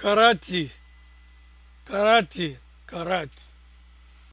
karate karate karate